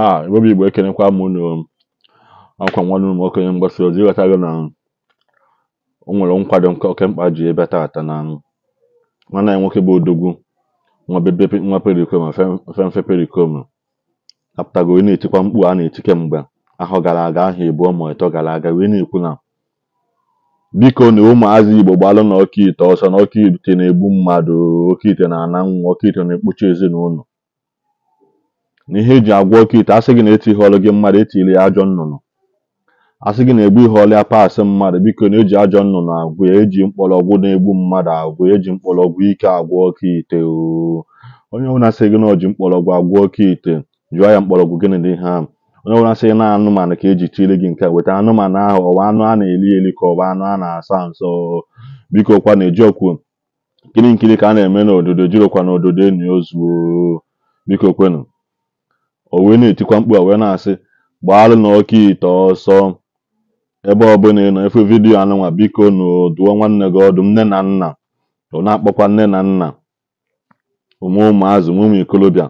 ha Igbobi Igbo ekenekwa m unu ọkwa nwanne m okenye mgbasa ozi ịghọtago na o nwere nkwado nke oke mkpa ji ebe taata na nwanne anyị nwoke bụ odogwu nwa perikom femfe perikom apụtago wee na-etikwa mkpu a na-eti kemgbe ahụ gara aga ahụ ebu ma ịtọ gara aga wee na-ekwu na biko na ụmụazị igbo gbalụ na ọka ite ọsọ na ọka ite na-egbu mmadụ oke ite na ana nwa oke ite na-ekpuchi ezinụlọ na ihe eji agwọ oke ite asị gị na eti ihe ọlụ gị mmadụ etili ya ajọ nnụnụ asị gị na-egbu ihe ọlụ ya paasị mmadụ biko na eji ajọ nnụnụ agwụ ya eji mkpọrọgwụ na-egbu mmadụ agwụ eji mkpọrọgwụ ike agwọ oke ite onye ọbụla sị gị na oji mkpọrọgwụ agwọ oke ite jụọ ya mkpọrọgwụ gịnị dị ha onye ọbụla sị na anụmanụ ka eji tiri gị nke weta anụmanụ ahụ ọwa anụ a na-eli eli ka ọwa anụ a na-asa nsọ biko kwa na nkiri nkiri ka a na-eme n'ododo jirokwa n'ododo enyi ozuo biko kwenu o wee na-etikwa mkpu a wee na-asị gbaalụ na ọka ite ọsọ ebe ọbụla ịnọ nọ efe vidiyo anụnwa biko na duo nwanne gị ọdụ nne na nna ọ na-akpọkwa nne na nna ụmụ ụmụazụ ụmụ ikolobịa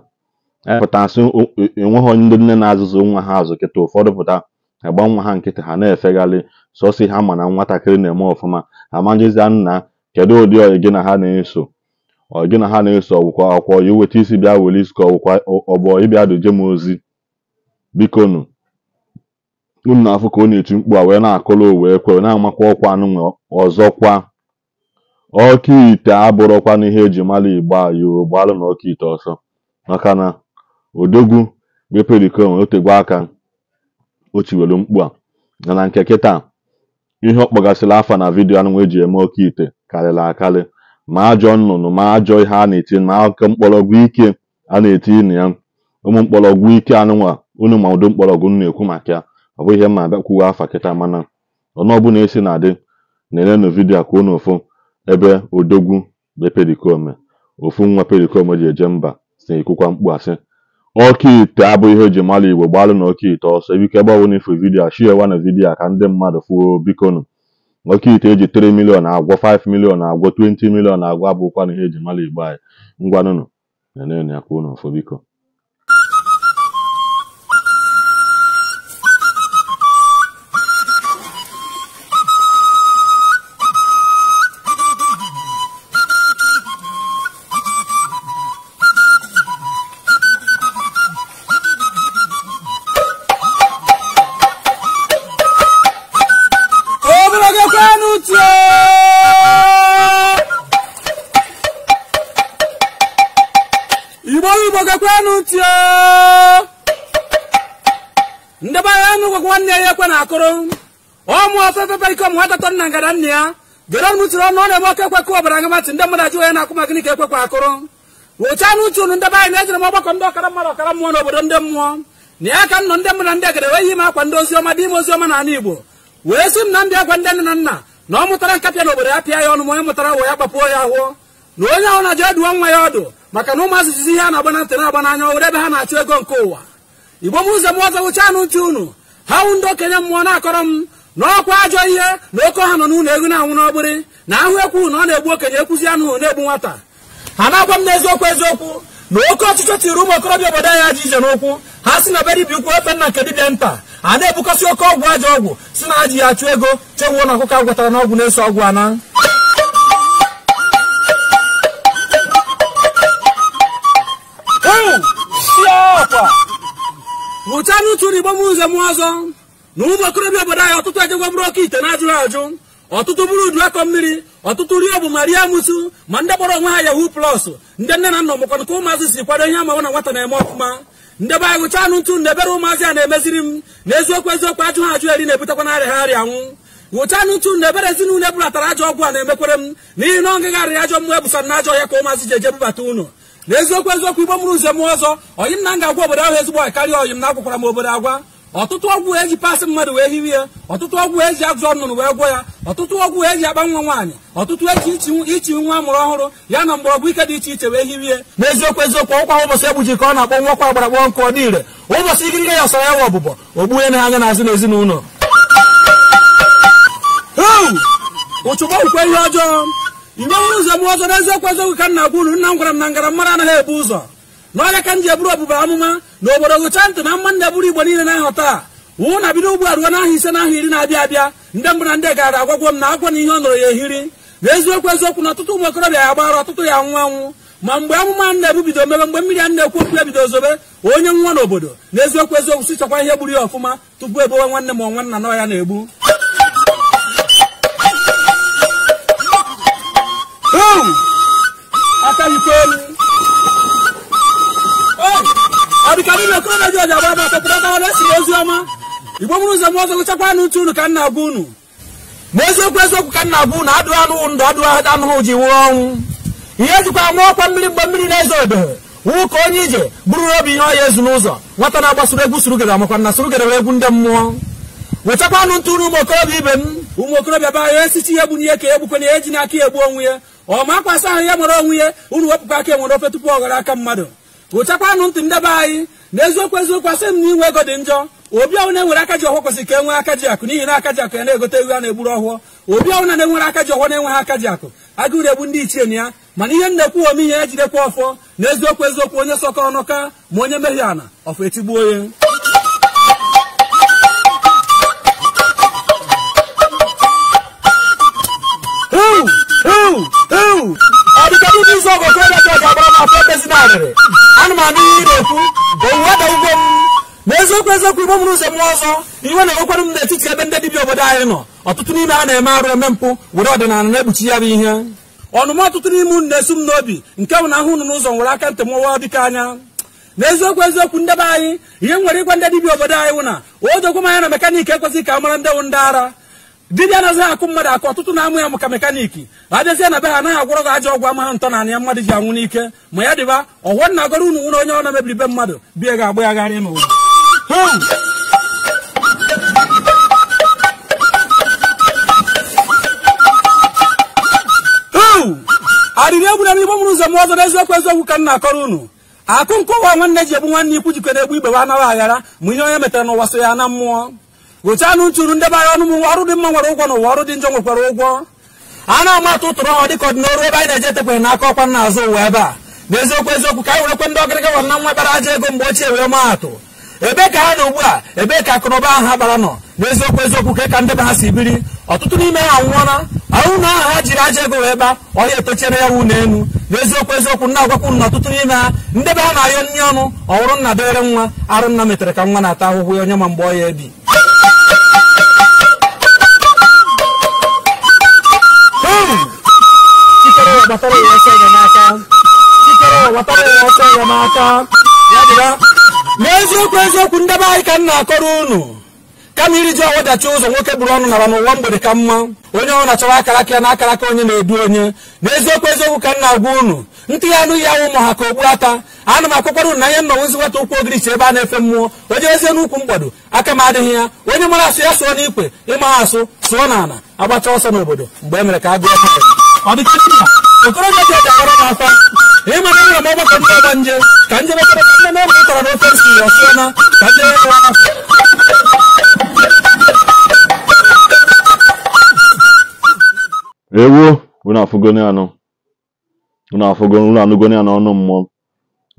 e pụtasị enweghị e onye ndị nne na-azụzụ nwa ha azụ kịta ụfọdụ pụta agba nwa ha nkịtị ha na-efegharị sọsị ha ma na nwatakịrị na-eme ọfụma amajizia nna kedu ụdị ọyị gị na ha na-eso ọ gị na ha na-eso ọgwụkwọ akwụkwọ ya weta isi bịa were isi ka ọgwụkwa ọgbọ ịbịa dojem m ozi bikonu unu na-afụ ka ọ na-eti mkpu a wee na o wee kwe na-amakwa ọkwa anụ ọzọkwa ọka ite na n'ihe eji mara igbo ayoo gbalụ na ọka ite ọsọ maka na odogwu beperikon otegwe aka o chiwelu mkpu a na nke kịta ihe ọ kpọgasịrị afa na vidiyo anụnwa eji eme ọka ite karịrị akarị ma ajọ nnụnụ ma ajọ ihe a na-eti ma akụkọ mkpọrọgwụ ike a na-eti na ya ụmụ mkpọrọgwụ ike anụnwa unu ma ụdị mkpọrọgwụ na-ekwu maka ya ọ bụ ihe ma abịakwuwe afa kịta mana ọnụ ọbụla esi na-adị na-elenụ vidio a kwuo n'ofu ebe odogwu be perikome ofu nwa perikome ji eje mba si ekwukwa mkpu asị ọka ite abụghị ihe eji mara igbo gbalụ na ọka ite ọsọ ebike gbawo n'ifu vidio a shiewa na vidio a ka ndị mmadụ fuo bikonu nwoke ite eji 3 milion agwọ 5 milion agwọ 20 milion agwọ abụkwa na ihe eji mara igbo anyị ngwanụnụ nenenu ya ka unu ọfụ biko ndebara ọnụ nwanne ya ekwe na akụrụ ọmụ ọfefefe iko mụnwatatọ nna ngada nna ya jere ọnụ tụrụ ọnụ ọ na-eme oke ekwekọ ọbara ngamatị ndị mmadụ ajụ ya na-akwụ maka gịnị ka ekwekwa akụrụ wụcha na uche unu ndebe anyị na-ejere m ọgbakọ ndị ọkara mmadụ ọkara mmụọ n'obodo ndị mmụọ na ya ka m nọ ndị mmadụ ndị agada wee yi m akwa ndị oziọma dị ime oziọma n'ala igbo wee sị m na m bịa gwa ndị na nna na ọ mụtara nkapịa n'obodo ya pịa ya ọnụ ma onye mụtara wụ ya gbapuo ya ahụọ na onye ahụ na-ajụ eduo nwa ya ọdụ maka na ụmụ asụsụ ihe a na-agba na ntị na-agba n'anya owere ebe ha na-achụ ego nke ụwa igbo m ụzọ m ọzọ wụcha anụ ntị unu ha wụ ndị okenye mmụọ na-akọrọ m na ọkwa ajọ ihe na oke ọha nọ n'ụlọ egwu na-anwụ n'ọgbịrị na ahụ ekwu na ọ na-egbu okenye ekwuzi anụ na-egbu nwata ha na-agwa m n'eziokwu eziokwu na oke ọchịchọ tiri ụmụ okorobịa obodo anyị ajọ ije n'ụkwụ ha si na be dibịa ukwu ofe nna nke dibịa nta a na-ebukọsị oke ọgwụ ajọ ọgwụ si na ajọ ya achụ ego chewuo na ọkụkọ agwatara n'ọgwụ na-eso ọgwụ ana nwụchanụ ụtụ na igbo m ụzọ m ọzọ na ụmụ okorobịa obodo anyị ọtụtụ ejegwa bụrụ oke ite na-ajụrụ ajụ ọtụtụ bụrụ udu akọ mmiri ọtụtụ rie bụ ma rie amụsụ ma ndị gbara onwe ha yahoo plọs ndị nne na nna ọmụkwana ka ụmụazị si kwado ihe amawa na nwata na-eme ọfụma ndị be anyị gụchanụ ntụ na ebere ụmụazị a na-emeziri m na eziokwu eziokwu ajụ ha ajụ eri na-ebutekwa na arịa ha arịa nwụ nwụchanụ ntụ na ebere ezinụlọ ebulatara ajọ ọgwụ a na-emekwere m n'ihi na ọ ngagharị ajọ mmụọ ebusara na ajọ ya ka ụmụazị ji eje bubata ụlọ na eziokwu eziokwu igbo mụrụ ụzọ mụọ ọzọ oyi m na ga-agwa obodo ahụ ezigbo ọyị karịa oyi m na-agwakwara m obodo agwa ọtụtụ ọgwụ eji pasị mmadụ wee hiwe ya ọtụtụ ọgwụ eji agụzọ nnụnụ wee gwọ ya ọtụtụ ọgwụ eji akpa nwa nwaanyị ọtụtụ eji ichi nwa amụrụ ọhụrụ ya na mgbọrọgwụ ike dị iche iche wee hiwe n'eziokwu eziokwu ọkwa ụbọchị egbuji ka ọ na-akpọ nwa kwa agbara kpọọ nkụ ọ dị ire ụbọchị ya ọsara ya ọbụbọ ọbụbọ ogbuhe na anya n'azụ n'ezinụlọ ụchụgba kwukwe ihe ọjọọ mgbenwe ụzọ bụ ọzọ eziokwu eziokwu ka nna gwuru nna m gwara m na ngara mmadụ anaghị ebu ụzọ n'ọrịa ka m ji eburu ọbụba amụma na obodo gụcha ntị na mma ndị eburu igbo niile na-ahụ taa wụ na bido ugbu a ruo n'ahụ ise n'ahụ iri na-abịa abịa ndị mbụ na ndị gara agwagwo m na agwa na ihe ọ nọrọ ya ehiri na eziokwu eziokwu na ọtụtụ ụmụ okorobịa ya gbara ọtụtụ ya nwụ anwụ ma mgbe amụma na ebubido mebe mgbe mmiri a na-ekwu okwu ya bido zobe onye nwa n'obodo na eziokwu eziokwu si chọkwa ihe gburu ya ọfụma tupu ebowe nwanne m nwanna nọ ya na-egbu niile kọleji ọji agbada petatatara esi ozi ọma igbo bụrụ ụzọ m ọzọ gụchakwanụ ntụ unu ka nna bụ unu ma eziokwu eziokwu ka na bụ unu adụ anụ ndụ adụghị anụhụ ji nwụọ ọnwụ ihe jikwa nwa ọkwa mmiri mgbe mmiri na-ezo ebehe nwụ ka onye ije bụrụ obi ihe ọya ezu n'ụzọ nwata na-agbasoro egwu surugere makwa na surugere egwu ndị mmụọ wetakwanụ ntụ unu ụmụ okorobịa ibe m ụmụ okorobịa ba ya esichi ihe gbunye ka egbukwenye ya ji n'aka ya egbu onwe ya ọ ma akwasị ahụ ya nwere onwe ya unu wepụkwa aka enwere ofe tupu ọ ghara aka mmadụ gụchakwanụ ntị ndebe anyị na eziokwu eziokwu asị m na inwe ego dị njọ obi ọwụ na-enwere aka ji ọhụụ kwesịrị ka enwe nwee aka ji akụ n'ihi na aka ji akụ ya na-egote ewu a na-egburu ọhụụ obi ọwụ na na-enwere aka ji ọhụụ na-enweghị aka ji akụ agụụ na-egbu ndị ichie na ya mana ihe nnekwu ome ihe ejidekwa ọfọ na eziokwu eziokwu onye sọkọ ọnụ ma onye mehie ana ọfọ etigbuo ya Ooh! adịkarị n'izu ọgụ oke dada ga-agbara m afọ ebezi narịrị ana m anụ ihe ị na-ekwu owuwe da ugbo m na eziokwu eziokwu igbo mụrụ ụzọ ọzọ iwe na-enwekwara m n'etiti ebe ndị dibịa obodo anyị nọ ọtụtụ n'ime ha na-eme arụ eme mpụ were ọdịnala na-ekpuchi ya bụ ihe ọnụma ọtụtụ n'ime unu na-esu m n'obi nke bụ na ahụ unu n'ụzọ nwere aka ntị mụwa dịka anya n'eziokwu eziokwu ndebe anyị ihe nwere ịgwa ndị dibịa obodo anyị wụ na odogwu m anya na mekaniki ekwesịghị ka a mara ndị wụ ndị ara dibịa anaghị akụ mmadụ akụ ọtụtụ na-amụ ya maka mekaniki adịzie na be ha anaghị agwọrọ gị ajọ ọgwụ amaghị ntọ na ya mmadụ ji anwụ n'ike ma ya dịba ọwọ na agọrọ unu nwere onye ọ na-emebiri be mmadụ bie ga-agba ya gharịa n'ụwa arịrị egwu na igbo mụrụ ụzọ m ọzọ n'eziokwu eziokwu ka m na-akọrọ unu akụ nkọwa nwanne ji egbu nwanne ikwu jikọta egbu igbe wa anaghị aghara ma ihe onye metara n'ụwa so ya na mmụọ gụchanụ ntụrụ ndebanye ọnụ m ọrụ dị mma nwere ụgwọ na ụwa ọrụ dị njọ nwekwara ụgwọ a na-amatụ ụtụrụ ọhụ dịka ọdịnọrụ ebe anyị na-ejetekwere n'aka ọkwa nna azụ ụwa ebe a n'eziokwu eziokwu ka anyị werekwe ndị ọgịrịga wa na nwa bara aja ego mgbe ochie were maatụ ebe ka ha nọ ugbu a ebe ka akụnụba ahụ ha gbara nọ n'eziokwu eziokwu ka e ka ndebe ha si biri ọtụtụ n'ime ha nwụọla ahụ na aha ha jiri aja ego wee gba ọhịa etochiere ya wụ na enu n'eziokwu eziokwu nna agwakwu na ọtụtụ n'ime ha be ha na-ayọ nri ọnụ ọhụrụ nna dịrị nwa arụ nna metere ka nwa na-ata ahụhụ ya onye ma mgbe ọ ya ebi n'aka n'eziokwu eziokwu ndị be anyị ka m na-akọrọ unu kama iriji ọnwụ dachi ụzọ nwoke gburu ọnụ nara n'ụwa mgbede ka mma onye ọrụ na akara aka ya na akaraka onye na-edu onye n'eziokwu eziokwu ka m na-agwa unu ntị ya anụ ya ụmụ ha ka ogbu ata anụ m akụkwara unu na ihe nnọnwụzi nwata ụkwụ ogirichi ebe a na-efe mmụọ onye ezie n'ukwu mgbado aka m adịghị ya onye mara asụ ya sụọ n'ikwe ịma asụ sụọ n'ala agbacha ọsọ n'obodo mgbe e mere ka a gụọ okorobịa dị ọdagara n'afọ ịmara ka na ka unu afụgoni anọ unu afụgoni anụgoni mmụọ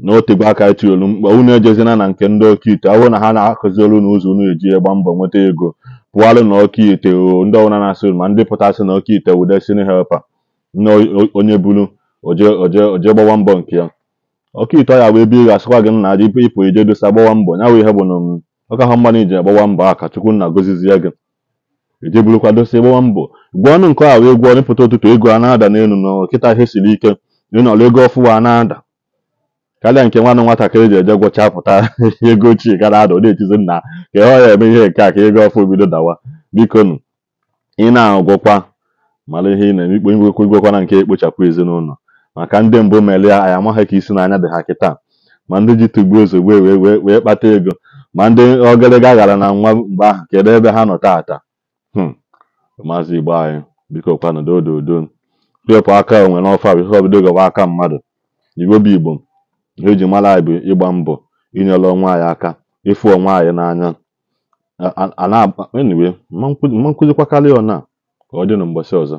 na otegbe aka etiolu mkpa unu ejezina na nke ndị ite ahụ na ha na olu na ụzọ unu eji gba mbọ nweta ego pụalụ na ite ọkaite ndị ọwụna na-asị ma ndị pụta asị na ite wudesini helpa onye buru oje gbawa mbọ nke ya ọka ito ya wee bie gasịkwa gị na adị ịpụ ije dosa gbawa mbọ nya wụ ihe bụ na um, ọka ha mmanụ iji agbawa mbọ a kachukwu na gozizi ya gị ije e burukwa dosa gbawa mbọ gwa ọnụ nke a wee gwọọ rịpụta ụtụtụ ego a na-ada n'elu na kịta ihe siri ike ịnọrọ ego ọfụwa na-ada karịa nke nwanne nwatakịrị ji eje gwọcha pụta ego ochie gara ada na-etizi nna ka ọ ya eme ihe nke a ka ego ọfụ bido dawa biko ị na-agwọkwa mara ihe ị na-eme ikpo igwekwa igwekwana nke ekpochapụ ezinụlọ maka ndị mbụ melia anyị amaghị ka isi n'anya dị ha kịta ma ndị ji tugbu ozugbo wee wee kpata ego ma ndị ọgịrịga ghara na nwa mgbe ahụ kedu ebe ha nọ taata hmm. maazị igbo anyị biko kwanụdo odo odo wepụ aka onwe n'ọfọ bụ ihe obido gọba aka mmadụ igbo bụ igbo eji mara anyị bụ ịgba mbọ inyere onwe anyị aka ịfụ onwe anyị n'anya a na-agba enyiwe mma nkụzikwakarị ọna Ka ọ dị na mgbasa ọzọ.